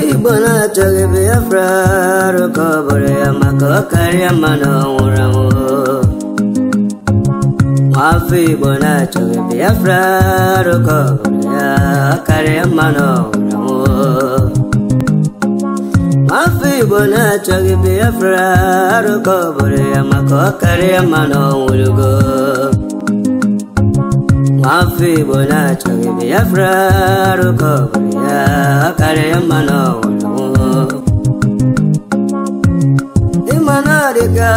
चा अारमान रोग बेरा मानव रफी बना चोग करे मनौर गो mafi bola choge biafra ruko bulia kare mano wolo imana rika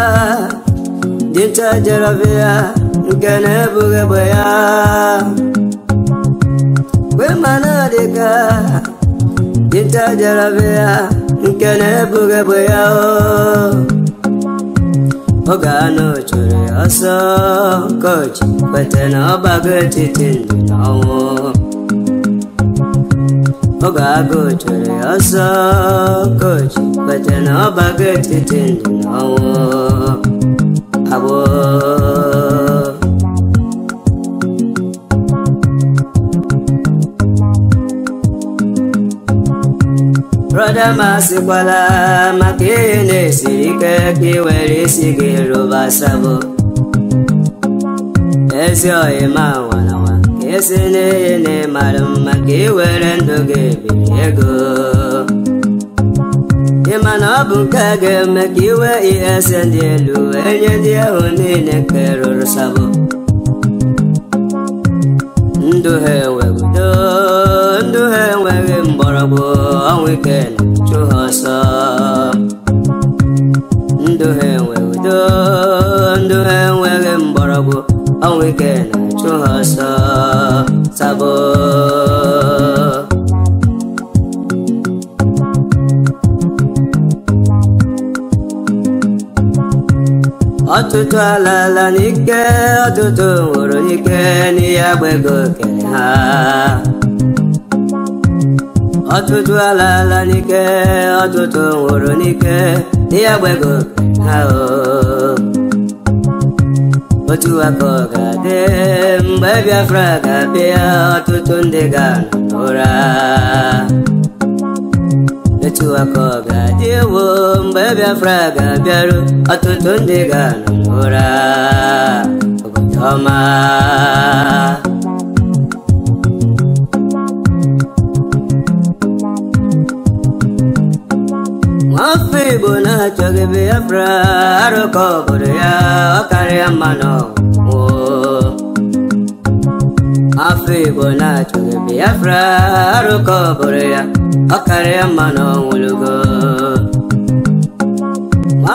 dinta jaravia gane buge boya we mana rika dinta jaravia gane buge boya oh ọgana chụrụ ọsọ kọchị kweta na ọ gbago etiti ndụ na ọnwụ ọgago chụrụ ọsọ kọchị kweta na ọ gbago etiti ndụ na ọnwụ abụọ ụfọdụ masịkwala maka ihe na-esiri ike ka ị were isi gị rụbasabụ ezi ọhịma nwananwa ka esi n'ihe na ịmara mma ka ị were ndụ gị biri ego ịma na ọ bụ nke ga-eme ka iwe ese ndị elu enye ndị ahụ niile nke rụrụ sabụ ndụ ha enweghị mgbọrọgwụ awikela chuhasa nduhe nweudo nduhe nweghị mgbọrọgwụ awikela chuhasa sabo ọtụtụ alala n'ike ọtụtụ nwụrụ n'ike n'ihe agbago okere ha ọtụtụ ala ala n'ike ọtụtụ nwụrụ n'ike ihe gbego ha otu aka ọ ga-adị mgbe Biafra ga-abịa ọtụtụ ndị ga-anọ ụra etu aka ọ ga-adị ewo mgbe Biafra ga-abịaru ọtụtụ ndị ga ụra obodo ọma chagi biafra aroko boreya okari amano wo afigo na chagi biafra aroko boreya okari amano wulugo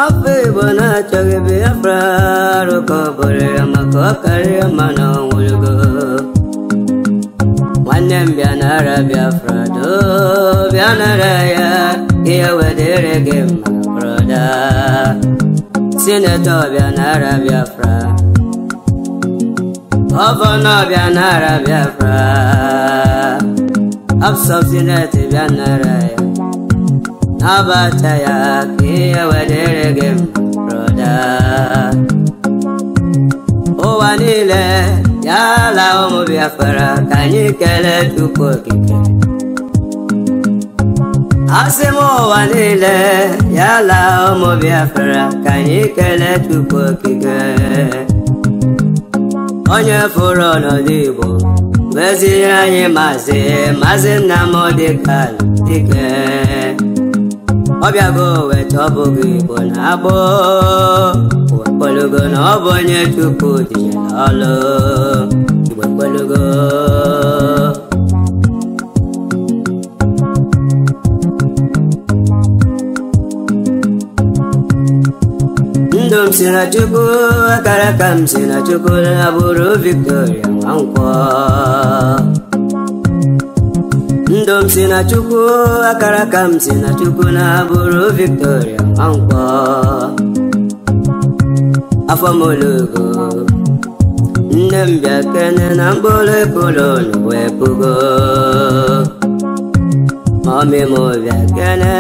afigo na chagi biafra aroko boreya mako okari amano wulugo nwannem bịanara biafra do bịanara ya ihe wedere gị mma obodo sinetọ ọbịa n'ara Biafra gọvanọ bia n'ara Biafra absọb sineti bịa n'ara ya n'abata ya ka ihe wedere gị broda ụwa niile ya ala ụmụ Biafra ka anyị kelee Chukwu okike Asimo walile yala ọmọ Biafra kanyị kele Chukwu okike onye fụrụ ọnọdụ Igbo meziere anyị maazị maazị Nnamdi Kanu Dike ọbịago weta ọ Igbo na agbọ kpologo na ọ bụ onye Chukwu dị ọlụ Igbo Dom se na chuku, karakam na chuku, na buru Victoria Dom se na chuku, karakam na chuku, na buru Victoria Mankwa. Afamolugo, ndem biakene nambole kulo nwepugo. Mami mo vekene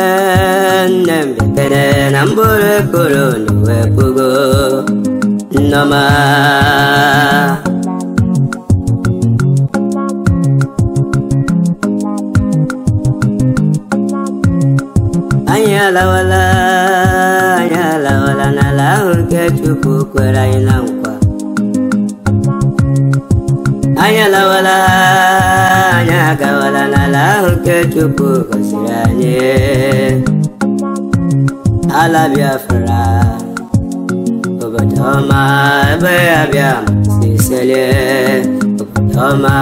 Nem vekene nambure kuru nuwe pugu Nama Anya la wala Anya la wala na la urke chupu kwera ina mkwa Anya la wala agawala n'ala ahụ nke Chukwu gọziri anyị ala Biafra obodo ọma ebe ya bịa masị isele obodo ọma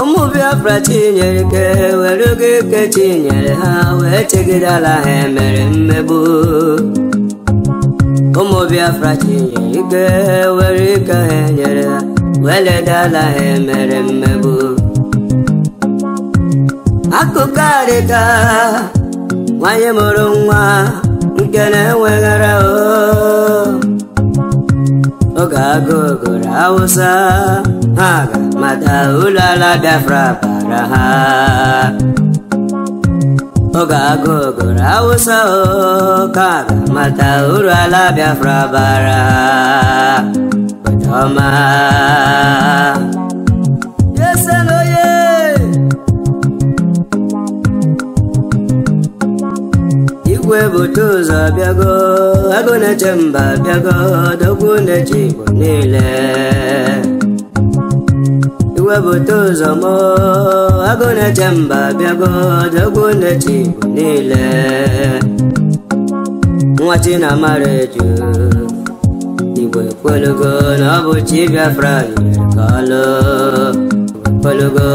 ụmụ Biafra tinyere ike were oge ike tinyere ha wee chegidala ha emere mmegbu ụmụ Biafra chinye ike were ike ha nyere ha weledala ha emere mmegbu akụkọ adịka nwanyị mụrụ nwa nke na-enweghara oge agụụ gụrụ ha ga mata ụlọ ala Biafra bara ha ọgagogoro awụsa ka mata uru ala Biafra bara ọma igwe bute ụzọ bịago agụ na-eche mba bịago dogwu na-eche igbo niile igwe bute ụzọ mụọ ọgụnechem bịago dogwunechi bụ niile nwa chinamara eju igwe kwelugo na ọ bụ chi biafra kwelugo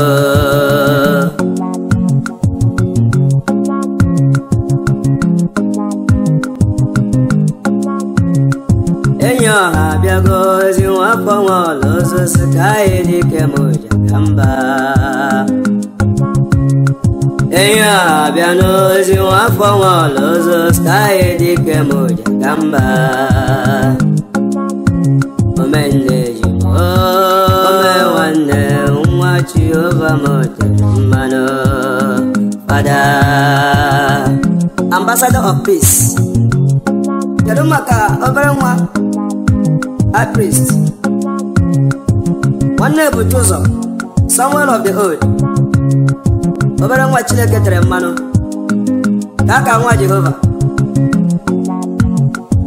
enyi ọha abịago ozi nwa afọ nwa ọla ozosi ka anyị dike ma ụja Enya bianozi wakwangwa lozo skaye dike moja kamba Omende jimo Omewane umwa chiova moja mbano Fada Ambassador of Peace Yadumaka obere nwa High Priest Nwanne bụ Joseph Someone of the Old obere nwa chineke tere mmanụ ka aka nwa jehova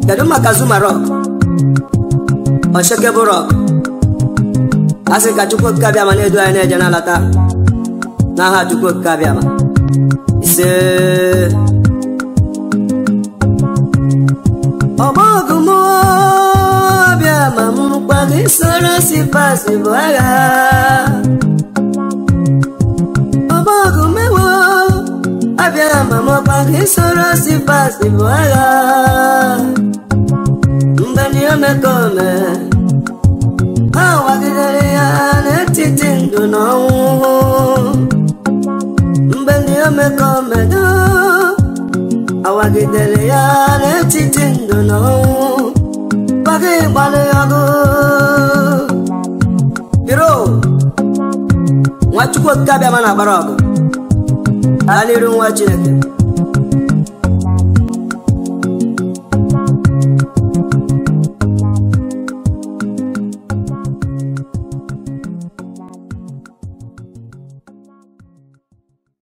kedu maka zuma rọk ọchekebụ rọk a sị ka chukwu abịama na-edu anyị na-eje na-alata n'aha chukwu okike abịama ise ọgbọgụm abịama ọbịa ma isoro si pasi bụ agha abịa mama mọkwa ka isoro sifas bụ agha mgbe ndị omekome ha wagidere ya n'etiti ndụ na ọnwụ mgbe ndị omekomedo awagidere ya n'etiti ndụ na ọnwụ gbagị gbalị ọgụ biro nwachukwu okike abịa ma I need to watch it.